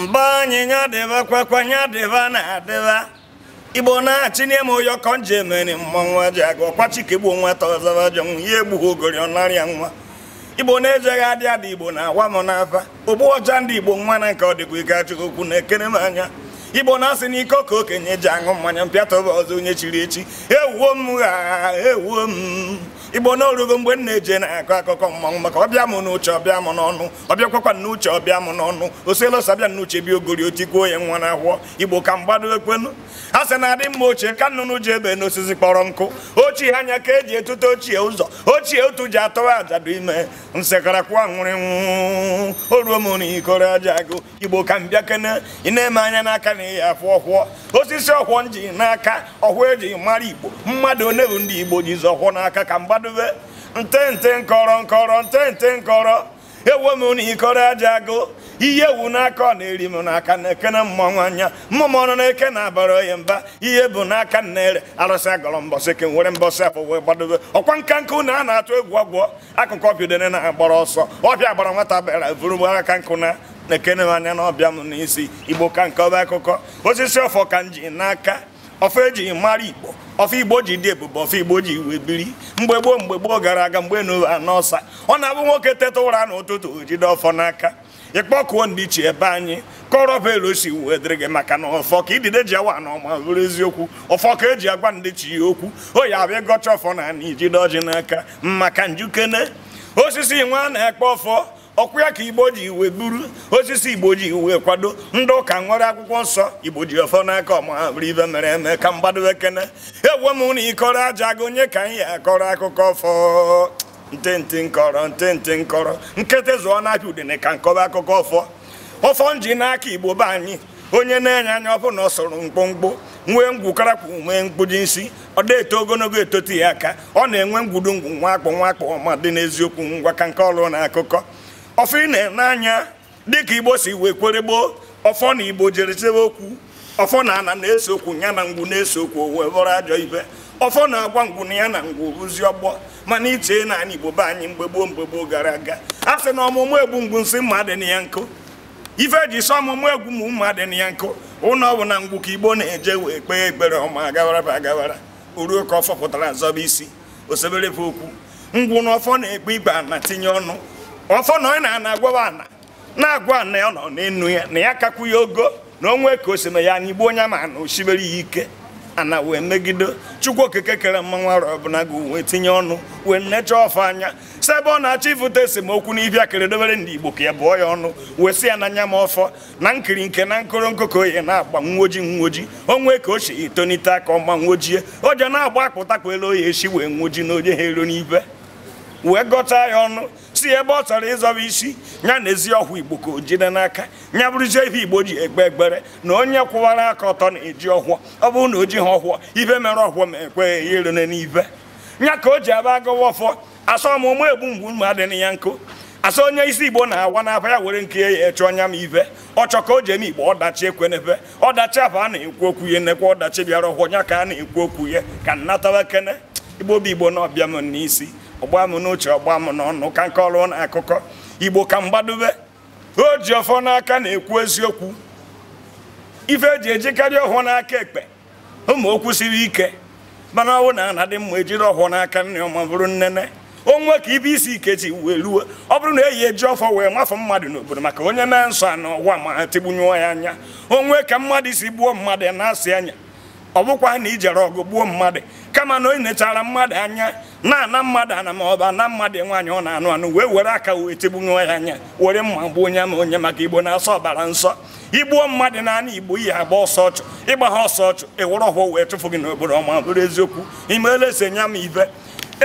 mgbe anyị nya dịba kwakwa nya dịba na-adịba igbo na-achị n'ime ụyọ ka nje emeri mmanwụ ji aga ọkwachike chike gbuo ọzọba jọnwụ ya egbughị ogori ọnarịa nwa igbo na-ejeghị adị adị igbo na-agwa m n'afa ogbu ọcha ndị igbo nwa na nke ọ dịkwa ike achụghị okwu na-ekere m anya igbo na-asị ike ka okenye ji aṅụ mmanya mpịatọba ọzọ onye chiri echi ewuo m ha ewuo m igbo n'orugo mgbe m na-eje na-akọ akụkọ mmanwụ maka ọbịa m n'uche ọbịa m n'ọnụ ọbịakwakwa n'uche ọbịa m n'ọnụ osielụsa abịa n'uche bịa ogori otikuo ya nwa na-ahụọ igbo ka mgbado ekwenu a sị na adị mma ochie ka nnụnụ ji ebe n'osisi kpọrọ nkụ ochie anya ka eji etute ochie ụzọ ochie otu ji atọwa ajadụ ime nsekarakwụọ nwụrịnwụ o ruo m n'ikoro aja agụ igbo ka m bịa kene ị na-eme anya n'aka na ịya afụ ọhụọ osisi ọhụọ nji n'aka ọhụọ eji mara igbo mmadụ onye ndị igbo jizi ọhụọ n'aka ka mgbado akwadube ntente nkọrọ nkọrọ ntente nkọrọ ewe m na ikọrọ aja agụ ihe ewu n'aka na-eri m n'aka na-ekene mmanwụ anya mmụmọnụ na-eke na abara ya mba ihe bụ n'aka na-ere arụsị agọrọ mbọsị ka nwere mbọsị afọ wee gbadobe ọkwa nka nkụ na a na-atụ egwu ọgwụ akụkọ ọbidone na-agbara ọsọ ọbịa gbara nwata bịara vụrụgbu aka nkụ na na-ekene m anya na ọbịa m n'isi igbo ka nke ọba akụkọ osisi ọfọ ka m ji n'aka ọfọ ji mara igbo ọfọ igbo ji dị ebube ọfọ igbo ji iwe biri mgbe gboo mgbe gboo gara aga mgbe anọọsa ọ na-abụ nwoke teta ụra n'ụtụtụ jide ọfọ n'aka ịkpọkụo ndị ebe anyị kọrọ bụ elu si wee dịrị gị maka na ọfọ ka idide ji awa na ọma bụrụ eziokwu ọfọ ka eji agwa ndị chi ya okwu oyi abịa gọcha ọfọ na ana ijide ọjị n'aka maka njukene osisi nwa na-ekpe ọfọ ọkwụ ya ka igbo ji iwe buru osisi igbo ji iwe kwado ndị ụka nwere akwụkwọ nsọ igbo ji ọfọ n'aka ọma bụrụ ibe mere eme ka mgbado ekene ewe m na ịkọrọ aja gị onye ka anyị akọrọ akụkọ fọ ntịntị nkọrọ ntịntị nkọrọ nkịtị zụọ n'aka udene ka nkọba akụkọ ọfọ ọfọ nji n'aka igbo be anyị onye na-enye anya ọfụ na ọ sọrọ mkpụmkpụ nwee ngwukọrakwu nwee mkpuji isi ọ da-eto ogologo etoti ya aka ọ na-enwe ngwudu ngwu nwakpọ nwakpọ ọma dị n'eziokwu ngwa ka nke ọrụ na akụkọ ọfọ ị na-ene anya dịka igbo si wee kwere gboo ọfọ na igbo jere chebe okwu ọfọ na ana na-ese okwu ya na ngwu na-ese okwu wee bụrụ ajọ ibe ọfọ na-agwa ngwu na ya na ngwu bụzi ọgbọ mana ichee na anyị igbo be anyị mgbe gboo mgbe gboo gara aga a sị na ọmụmụ egwu ngwu nsị mma dị na ya nkụ ife ji sọ ọmụmụ egwu mụ mma dị na ya nkụ ụnọ ọ na ngwu ka igbo na-eje wee kpee ekpere ọma agawara ba agawara oruo ka ọ fọpụtara zọba isi osebere okwu ngwu na ọfọ na-ekpe igba na tinye ọnụ ọfọ na ọ na-agwawa ana na-agwa ana ya nọ n'enu ya na ya kakwu ya ogo na onwe ka o si na ya anyị gbuo onye ma na osibere ya ike ana wee megide chukwu okike kere mmanwụ arụ ọbụla gị wee tinye ọnụ wee nnecha ọfọ anya si ebe ọ na-achọ ifute esemokwu na ibia kere dobere ndị igbo ka ya bụọ ya ọnụ wee si ya anya ma ọfọ na nkiri nke na nkoro nkoko ya na-agba nwoji nwoji onwe ka o si etonite aka ọma nwojie o ji na-agba akpụtakpụ elu oya esi wee nwoji na onye ha ero n'ibe wee gọta ya ọnụ si ebe ọ chọrọ ịzọba isi ya na ezi ọhụụ igbo ka o jide n'aka ya bụrụzie ihe igbo ji egbe egbere na onye kwụwara aka ọtọ na-eji ọhụọ ọ bụrụ na o ha ọhụọ ibe mere ọhụụ ma ekweghị ya na n'ibe ya ka o ji aba gọwa ọfọ asọmụmụ egbu mgbu ma na ya nkụ asa onye isi igbo na-awa n'afa ya were nke ya eche ọnya m ive ọchọ ka o ji eme igbo ọdachi ekwe n'ebe ọdachi afọ a na-ekwu okwu ya nekwa ọdachi bịara ọhụọ ya ka a na-ekwu okwu ya ka nnatawa kene igbo bụ igbo na ọbịa m n'isi ọgba m n'uche ọgba m n'ọnụ ka nke ọrụ na akụkọ igbo ka mgbadobe o ji ọfọ n'aka na-ekwu eziokwu ife eji ejikarị ọhụụ n'aka ekpe ụmụ okwu siri ike mana ọnwụ na ana dị mma ejiri ọhụụ n'aka nne ọma bụrụ nnene onwe ka ibe isi ike ji wee ruo ọ bụrụ na eyi eji ọfọ wee mafụ mmadụ n'obodo maka onye mee nsọ anọ ụwa ma ha tigbunye ya anya onwe ka mmadụ isi gbuo mmadụ ya na-asị anya ọ bụkwa na ijere ọgụ gbuo mmadụ kama na onye nechara mmadụ anya na-ana mmadụ ana ma ọba na mmadụ nwaanyị ọ na-anụ anụ wee were aka wee tegbunwe ya anya were mma gbuo onye ma onye maka igbo na-asọ ọbara nsọ igbuo mmadụ n'anị igbo ihe agba ọsọ ọchụ ịgba ha ọsọ ọchụ ịwụrụ ọhụụ wee chụfụ gị n'obodo ọma bụrụ eziokwu imeela ese nya m ibe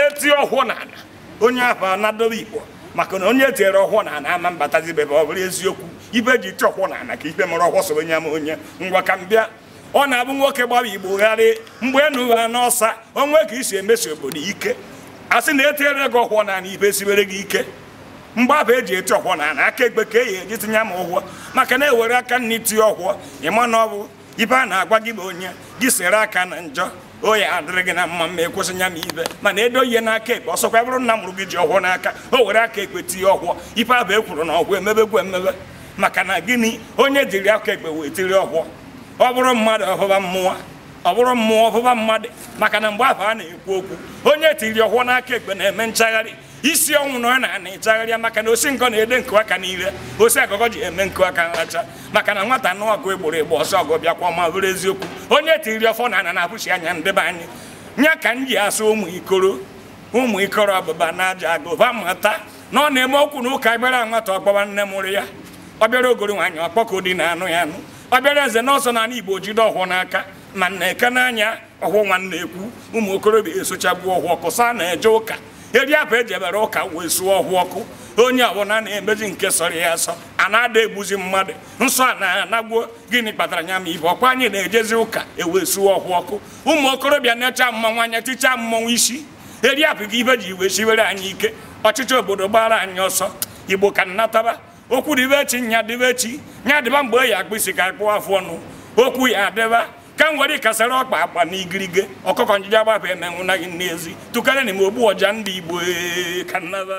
eti ọhụụ na ana onye ahụ anadobe igbo maka na onye e tiere ọhụụ na ana ama mbatazi bebe ọ bụrụ eziokwu ibe e ji ti ọkwụ na ana ka ibe mara ọkwọ so onye onye ngwa ka m bịa ọ na-abụ nwoke gbawa igbo gharị mgbe enu ha ọsa, onwe ka isi emesi obodo ike a sị na etiere gị ọkwọ na ibe siwere gị ike mgbaba eji eti ọkwọ na ana aka egbe ka eyi eji tinye m ụgwọ maka na ewere aka nna itinye ọkwọ ịma na ọ bụ ibe a na-agwa gị bụ onye gị sere aka na njọ oyi adịrị gị na mma mma ekwesị nya m ibe mana edo ihe n'aka ekpe ọsọkwa bụrụ nna mụrụ gị ji ọkwọ n'aka o were aka ekpe tinye ọhụọ ibe abụ ekwuru na ọkwọ emebegwu emebe maka na gịnị onye jiri aka ekpe wee tiri ọhụọ ọ bụrụ mmadụ ọhụba mmụọ ọ bụrụ mmụọ ọhụba mmadụ maka na mgbe afọ a na-ekwu okwu onye tiri ọhụọ n'aka ekpe na-eme nchagharị isi ọnwụ na ọ na-ana ịchagharịa maka na osi nkọ na-ede nkụ aka n'ire osi agụgọ ji eme nkụ aka nracha maka na nwata nụ ọgụ egboro egbo ọsọ ọgụ bịakwa ma bụrụ eziokwu onye tiri ọfọ na ana na-apụchi anya ndebe anyị nya ka m ji asụ ụmụ ikoro ụmụ ikoro ọbụba na aja agụba mata na ọ na-eme okwu na ụka gbara nwata ọgbawa nne mụrụ ya ọ bịara ogori nwaanyị ọkpọkọ dị na anụ ya anụ ọbịara eze nọọsọ na ala igbo jide ọhụụ n'aka na nneke n'anya ọhụ nwanne ekwu ụmụ okorobịa esochagbuo ọhụ ọkụ saa na-eje ụka eri apụ eji ebere ụka wee suo ọhụ ọkụ onye ọbụla na-emezi nke sọrọ ya asọ a na-ada egbuzi mmadụ nsọ a na-anagbuo gịnị kpatara nya ma ibe ọkwa anyị na-ejezi ụka e wee suo ọhụ ọkụ ụmụ okorobịa na-echa mmanwụ anya tichaa mmanwụ isi eri apụ gị ibe ji wee siwere anyị ike ọchịchị obodo gbara anyị ọsọ igbo ka nnataba okwu be echi nya dịbe echi nya dịba mgbe e yi isi ka akpụ afọ ọnụ okwu ya adịba ka m were ọkpa akpa na igirige ọkụkọ njide agbapụ emenwụ na n'ezi tụkarị na m ogbu ọja ndị igbo ka nnaba